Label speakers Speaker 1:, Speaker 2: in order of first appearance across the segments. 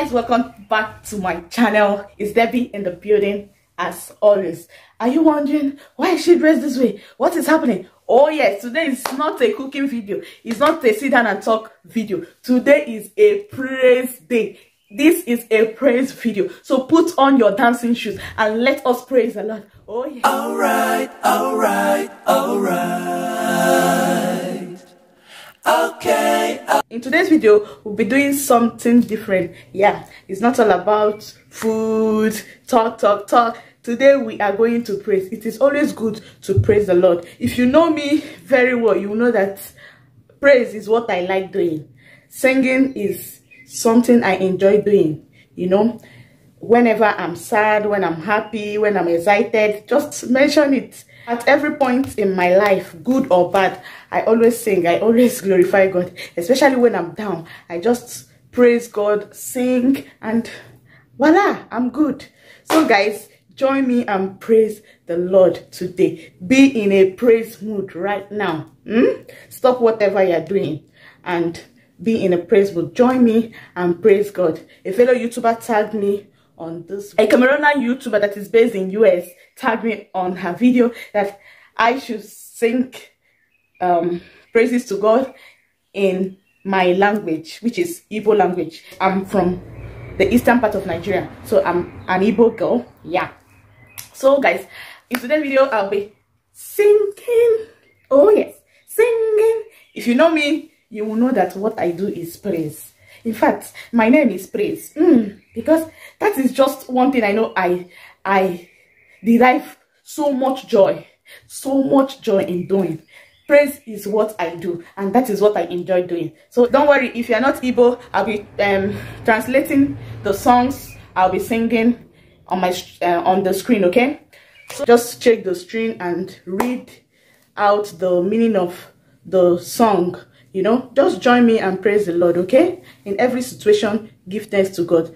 Speaker 1: guys welcome back to my channel it's debbie in the building as always are you wondering why is she dressed this way what is happening oh yes today is not a cooking video it's not a sit down and talk video today is a praise day this is a praise video so put on your dancing shoes and let us praise the lord oh yeah. all right all right all right okay uh in today's video we'll be doing something different yeah it's not all about food talk talk talk today we are going to praise it is always good to praise the lord if you know me very well you know that praise is what i like doing singing is something i enjoy doing you know whenever i'm sad when i'm happy when i'm excited just mention it at every point in my life, good or bad, I always sing, I always glorify God, especially when I'm down. I just praise God, sing, and voila, I'm good. So guys, join me and praise the Lord today. Be in a praise mood right now. Hmm? Stop whatever you're doing and be in a praise mood. Join me and praise God. A fellow YouTuber tagged me on this. A Cameroonian YouTuber that is based in US tagged me on her video that I should sing um, praises to God in my language, which is Igbo language. I'm from the eastern part of Nigeria, so I'm an Igbo girl. Yeah. So guys, in today's video, I'll be singing. Oh yes, singing. If you know me, you will know that what I do is praise in fact my name is praise mm, because that is just one thing i know i i derive so much joy so much joy in doing praise is what i do and that is what i enjoy doing so don't worry if you're not able i'll be um, translating the songs i'll be singing on my uh, on the screen okay so just check the screen and read out the meaning of the song you know, just join me and praise the Lord, okay? In every situation, give thanks to God.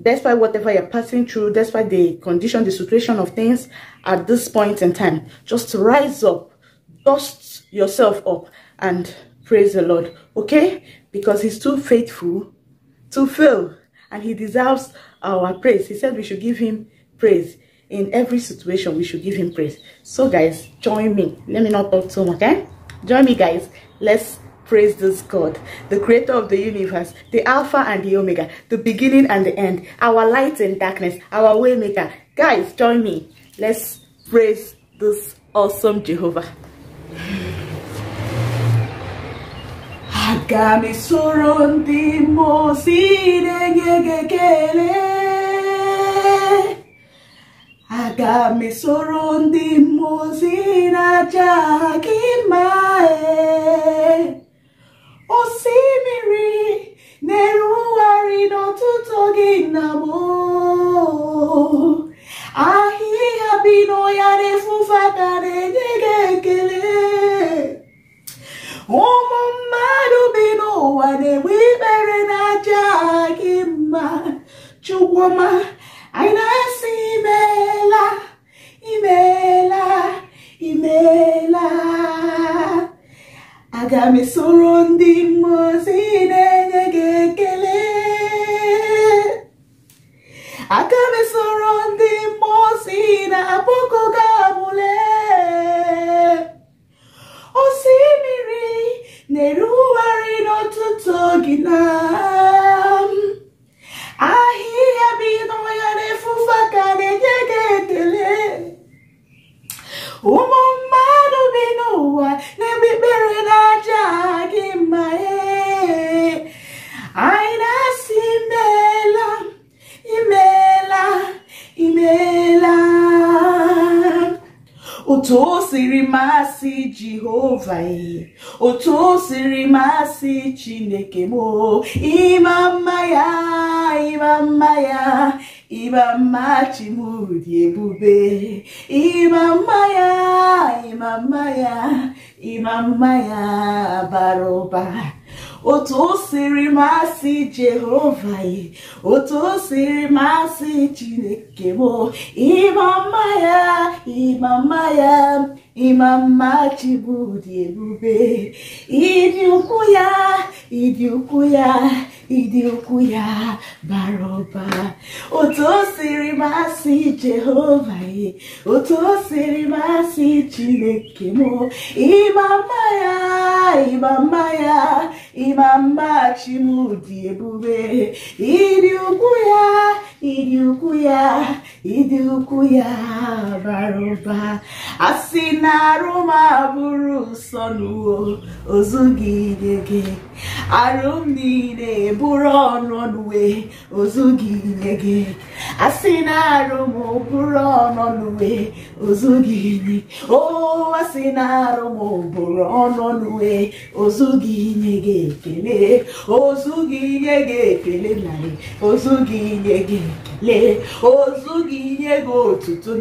Speaker 1: Despite whatever you're passing through, despite the condition, the situation of things at this point in time, just rise up, dust yourself up, and praise the Lord, okay? Because He's too faithful to fail, and He deserves our praise. He said we should give Him praise in every situation we should give him praise so guys join me let me not talk too much okay eh? join me guys let's Praise this God, the creator of the universe, the Alpha and the Omega, the beginning and the end, our light and darkness, our waymaker. Guys, join me. Let's praise this awesome Jehovah. Aga m esoro ndị mmụọ ozi na
Speaker 2: osimiri na-erugharị n'ọtụtụ oge nna m ahịhịa bi n'ọhịa na-efufata na-enye gị ekele
Speaker 1: ụmụ mmadụ na na-enwe ikpere na-aja gị mma chukwuma anyị na-asị imeela aga m ndị mmụọ na-enye gị ekele aga m ndị mmụọ na-abụkọ gị abụle osimiri na-erugharị n'ọtụtụ na pụta otu siri masị chineke mo, ịma mma ya ịma mma ya ịma mma chimụdị ebube ịma mma ya ịma ya ịma ya otu siri masị jehova otu siri masị chineke mo, ịma mma ya ịma ya ịmammachigbudị ebube ịdị ukwu ya ịdị ukwu ya ịdị ukwu ya bara ọba otu o siri masị jehova ye otu masị chineke m imama ya imama ya ịma mma chimụdị ebube ịdị ukwu ya ịdị ukwu ya ịdị ukwu ya bara na-arụ ma bụrụ nsọ n'uwo ozu gị nye gị Arụm niile bụrụ ọnụnụwe, ozu ozughị nye gị asị na arụ m bụrụ ọnọnụwe ozughị nye o asị na arụ m bụrụ ọnọnụwe ozughị nye gị ekele ozughị nye gị ekele ozu ozughị nye gị ekele Ozu ozughị nye gị otutu ozu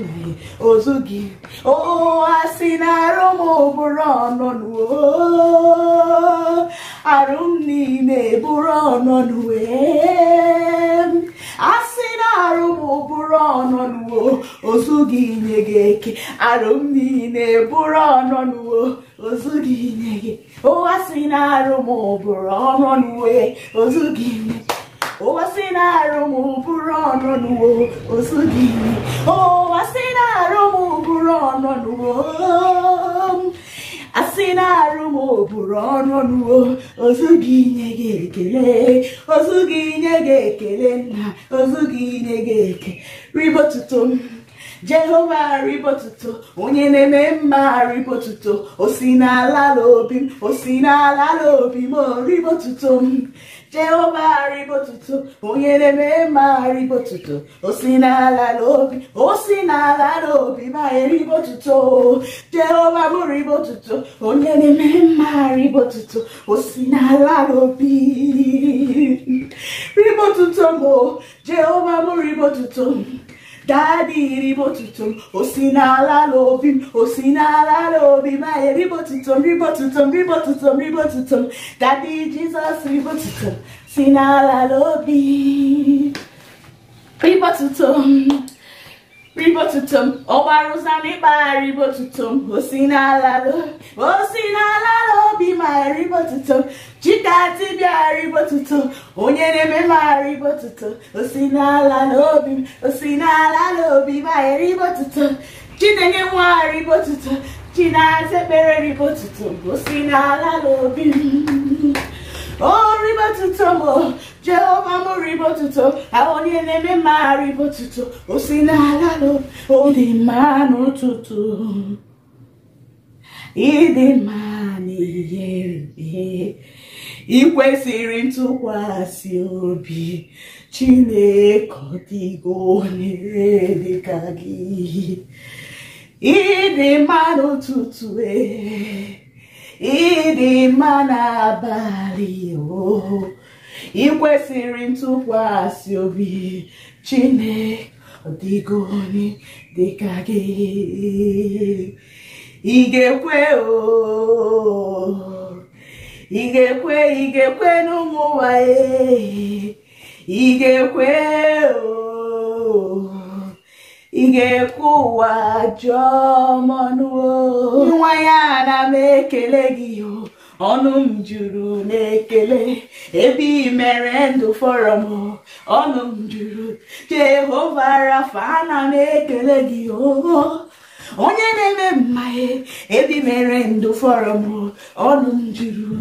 Speaker 1: ozughị o asị na arụ m bụrụ ọnọnụwe arụ arụ m niile bụrụ ọnọdụ wee a na arụ m bụrụ ọnọdụ ozughị inye gị eke arụ m niile bụrụ ọnọdụ inye gị na arụ m bụrụ ọnọdụ na arụ m bụrụ ọnọdụ inye bụrụ ozu ozughị inye gị ekele ozughị inye gị ekele nna gi inye gị eke ribotuto m jehova ribotuto onye na-eme mma ribotuto o si n'ala n'obi m o si n'ala n'obi m rịbọtụtụ m jehova arịbotuto onye na-eme mma arịbotuto o si n'ala n'obi o si n'ala n'obi ma eribotuto jehova bụrịbotuto onye na-eme mma arịbotuto o si n'ala n'obi ribotuto m jehova bụrịbotuto m Daddy ribotutum, osinala lobim, osinala lobim, my ribotutum, ribotutum, ribotutum, ribotutum. Daddy Jesus ribotutum, sinala lobim, ribotutum. Ribotutum, Oba Rosa ba, ribotutum, osinala lo, osinala. aghara igbotuto chika onye na-eme m aghara osi n'ala n'obi m osi n'ala n'obi m aghara igbotuto chinenye nwa aghara igbotuto chinaza ekpere igbotuto osi n'ala n'obi m o ribotuto m jehova m ribotuto onye na-eme m aghara osi n'ala n'obi dị mma n'ụtụtụ ịdị mma n'ihe rube ị kwesịrị ntụkwasị obi Chineke ọ dịgo onyere dịka gị ịdị mma n'ụtụtụ ehe ịdị mma n'abalị oo ị kwesịrị ntụkwasị obi Chineke ọ dịgo onye dịka gị ị ga-ekwe ị n'ụmụ nwanyị ị ga-ekwe ị ga-ekwe ụwa jụọ mọnụ nwa ya na m ekele gị ọnụ m juru na-ekele ebe ị mere ndụ fọrọm ọnụ m juru Jehova Rafa na m ekele gị oo onye na-eme mmanya ebi mere ndụ fọrọ m ọnụ m juru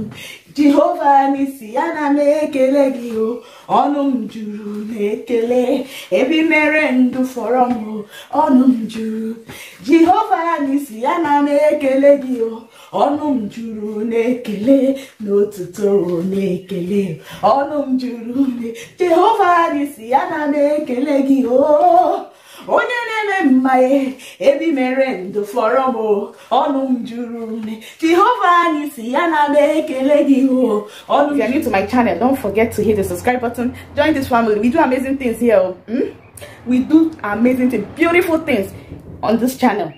Speaker 1: jehova n'isi ya na m ekele gị o ọnụ m juru na-ekele ebi mere ndụ fọrọ m ọnụ m juru jehova n'isi ya na m ekele gị o ọnụ m juru na-ekele n'otuto na-ekele ọnụ m juru jehova n'isi ya na m ekele gị o onye na-eme mma ebi mere ndụ fọrọ m ọnụ m si ya na m ekele if you are new to my channel don't forget to hit the subscribe button join this family we do amazing things here mm? we do amazing things beautiful things on this channel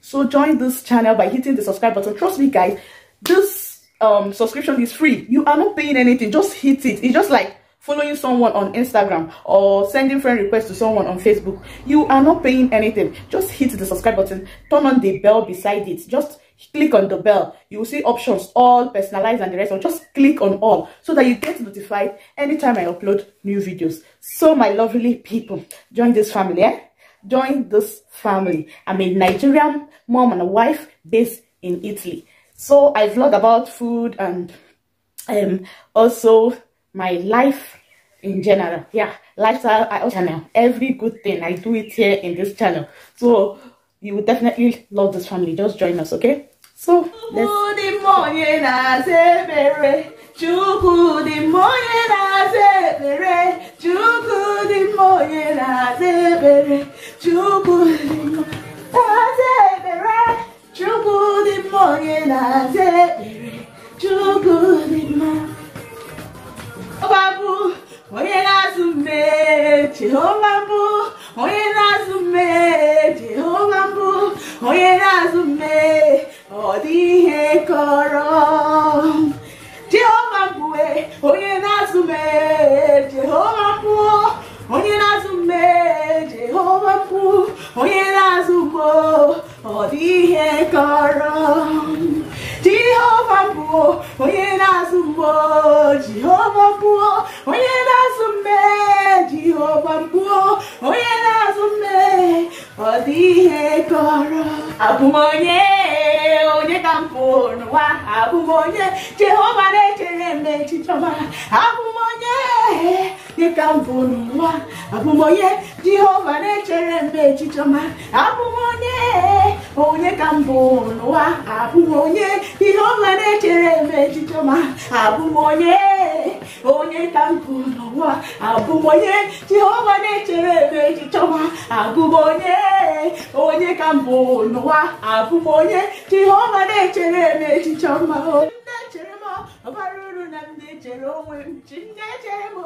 Speaker 1: so join this channel by hitting the subscribe button trust me guys this um subscription is free you are not paying anything just hit it it's just like following someone on Instagram or sending friend requests to someone on Facebook, you are not paying anything. Just hit the subscribe button, turn on the bell beside it. Just click on the bell. You will see options, all, personalized and the rest. Or just click on all so that you get notified anytime I upload new videos. So my lovely people, join this family, eh? Join this family. I'm a Nigerian mom and a wife based in Italy. So I vlog about food and um, also my life in general. Yeah, lifestyle, I also know every good thing I do it here in this channel. So you will definitely love this family. Just join us, okay? So let's. Chukwu dị mma onye na-azụ mme, Jehova mbụ onye na-azụ mme, Jehova mbụ onye na-azụ mme, ọ dị ihe kọrọ Jehova mbụ e, onye na-azụ mme, Jehova mbụ onye na-azụ mme, Jehova mbụ onye na-azụ mbo ọ dị ihe kọrọ Jehova mbụ onye na-azụ mbo rọra
Speaker 2: àbùmọ̀yé.
Speaker 1: n'ụwa abụm onye jehova na-echere m n'echiche ọma abụm onye dịka mbụ n'ụwa onye jehova na-echere m n'echiche ọma abụm onye onye ka mbụ n'ụwa abụm onye jehova na-echere m n'echiche ọma abụm onye onye ka n'ụwa onye jehova na-echere m n'echiche ọma abụm onye onye ka mbụ n'ụwa onye jehova na-echere na-eme echiche ọma na-echere m ọbara uru na m na-echere onwe m chi m na-echere m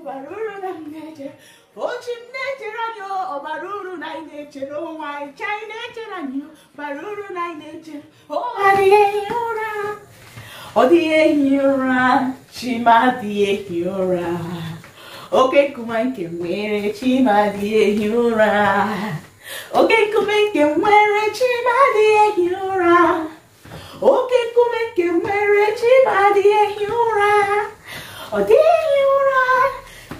Speaker 1: ọbara uru na m na-echere ochi m na-echere anyị ọbara uru na anyị na-echere onwe anyị chi anyị na-echere anyị ọbara uru na anyị na-echere ụra dịghị ehi ụra ọ dịghị ehi ụra chima dịghị ehi ụra oke nkume nke nwere chima dịghị ehi ụra oke nkume nke nwere
Speaker 2: chima dịghị ehi ụra oke nkume nke nwere chibadị ehi ụra ọ dịghị ụra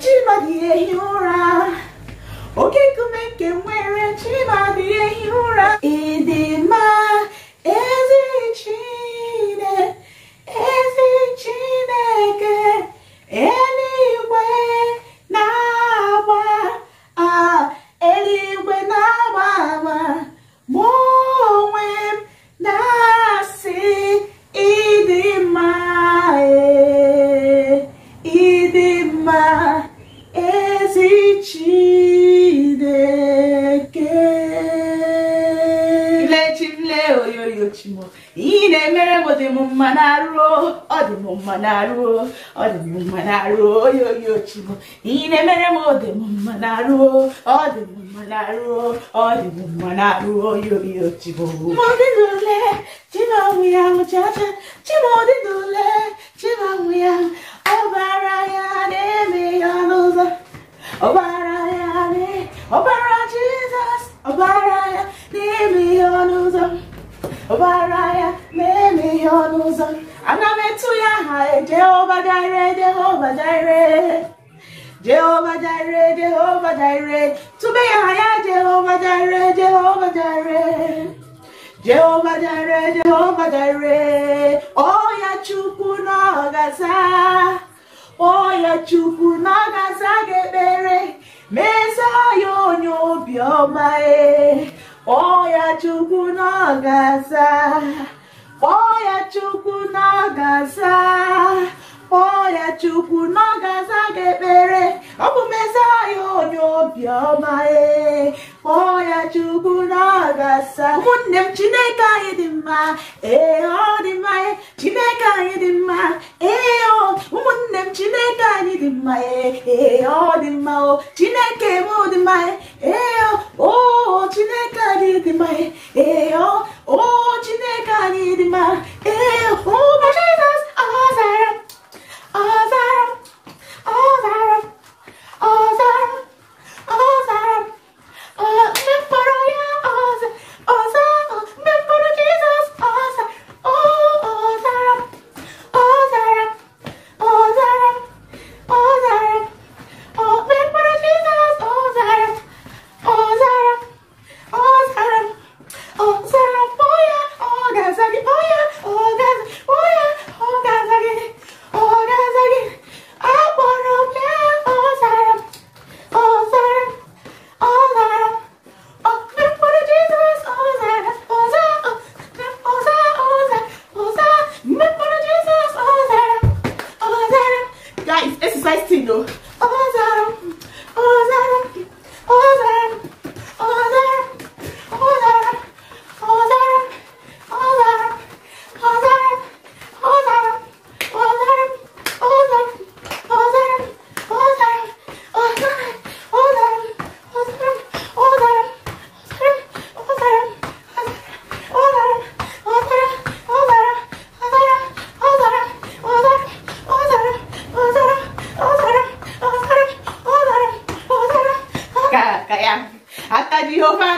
Speaker 2: chibadị ehi
Speaker 1: ụra oke kume nke e e nwere Ochimu. Ị na-emere m dị m mma na-arụ ọ dị m mma na-arụ ọ dị m mma na-arụ onye oyi Ochimu. Ị na-emere m dị m mma na-arụ ọ dị m mma na-arụ ọ dị m mma na-arụ onye oyi Ochimu. Ma ọ dị n'ule chima ọnwụ ya ụchacha chima ọ dị n'ule
Speaker 2: chima ọnwụ ya ya na ọ bara Jizọs ya na o bara jizos
Speaker 1: ya na eme ya ọbara ya na-eme ihe ọnụ ụzọ ana ya aha Jehovah Jire Jehovah Jire Jehovah Jire Jehovah Jire tụbe ya aha ya Jehova Jehovah Jehova Jehovah Jehova Jehovah Jehova Jire ọya Chukwu na ọgaza ọya oh, Chukwu na ọgaza ga-ekpere mezie ya onye kpọọ ya chukwu n'ọgasa kpọọ ya chukwu n'ọgasa kpọọ ya chukwu n'ọgasa ga-ekpere obiọma ee kpọọ ya chukwu na ọ ga m chineke anyị dị mma ee ọ dị mma e, chineke anyị dị mma ee ụmụnne m chineke anyị dị mma e, ee ọ dị mma o chineke mma ee o chineke anyị dị mma ee o
Speaker 2: chineke anyị dị mma ee jizọs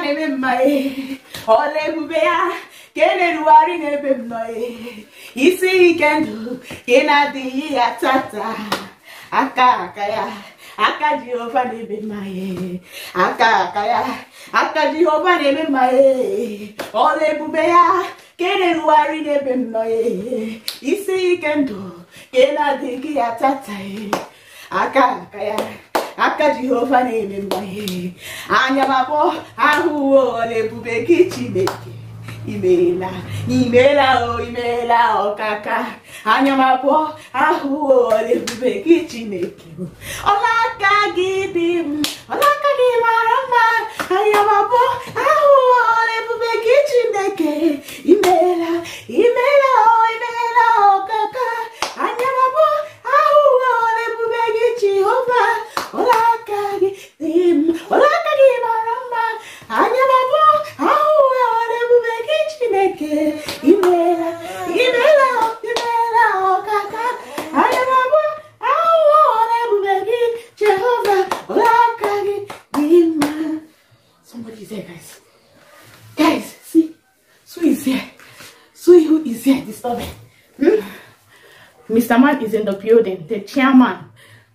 Speaker 1: na-eme mma ọla ebube ya ka e na-erugharị na-ebe nnọ isi ike ndụ ka ị na-adịghị ya tata aka aka ya aka jehova na-eme mma aka aka ya aka jehova na-eme mma ọla ebube ya ka ị na-erugharị na-ebe nnọ isi ike ndụ ka ị tata aka aka aka jehova na-eme mgbaghe anya makpọ ahụwo ọla ebube gị chineke imeela imeela o imeela ọkaka anya makpọ ahụwo ọla ebube gị chineke ọla gị dị m
Speaker 2: ọlaka gị mara mma anya makpọ ahụwo ọla ebube gị chineke imeela imeela o imeela ọkaka anya anya baba ahụ wara ebube gị chineke imela imela imela ọkaka anya dị there guys guys see
Speaker 1: here who is here mr hmm? man is in the building the chairman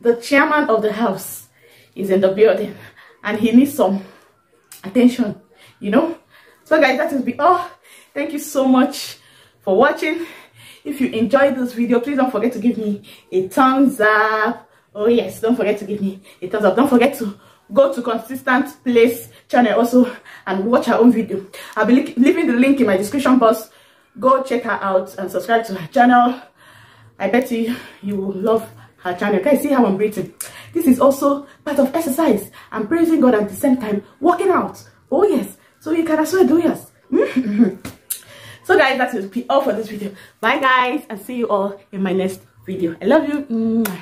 Speaker 1: the chairman of the house is in the building and he needs some attention you know so guys that will be all thank you so much for watching if you enjoyed this video please don't forget to give me a thumbs up oh yes don't forget to give me a thumbs up don't forget to go to consistent place channel also and watch her own video i'll be leaving the link in my description box go check her out and subscribe to her channel i bet you you will love her channel. Guys, see how I'm breathing. This is also part of exercise. I'm praising God at the same time, working out. Oh yes. So you can as well do yes. Mm-hmm. so guys, that will be all for this video. Bye guys, and see you all in my next video. I love you.